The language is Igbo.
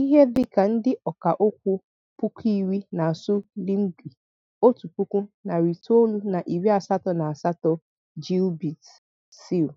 Ihe dị ka ndị ọka okwu puku iri na-asụ Lingui otu puku, narị itoolu na iri asatọ na asatọ gilbert seal).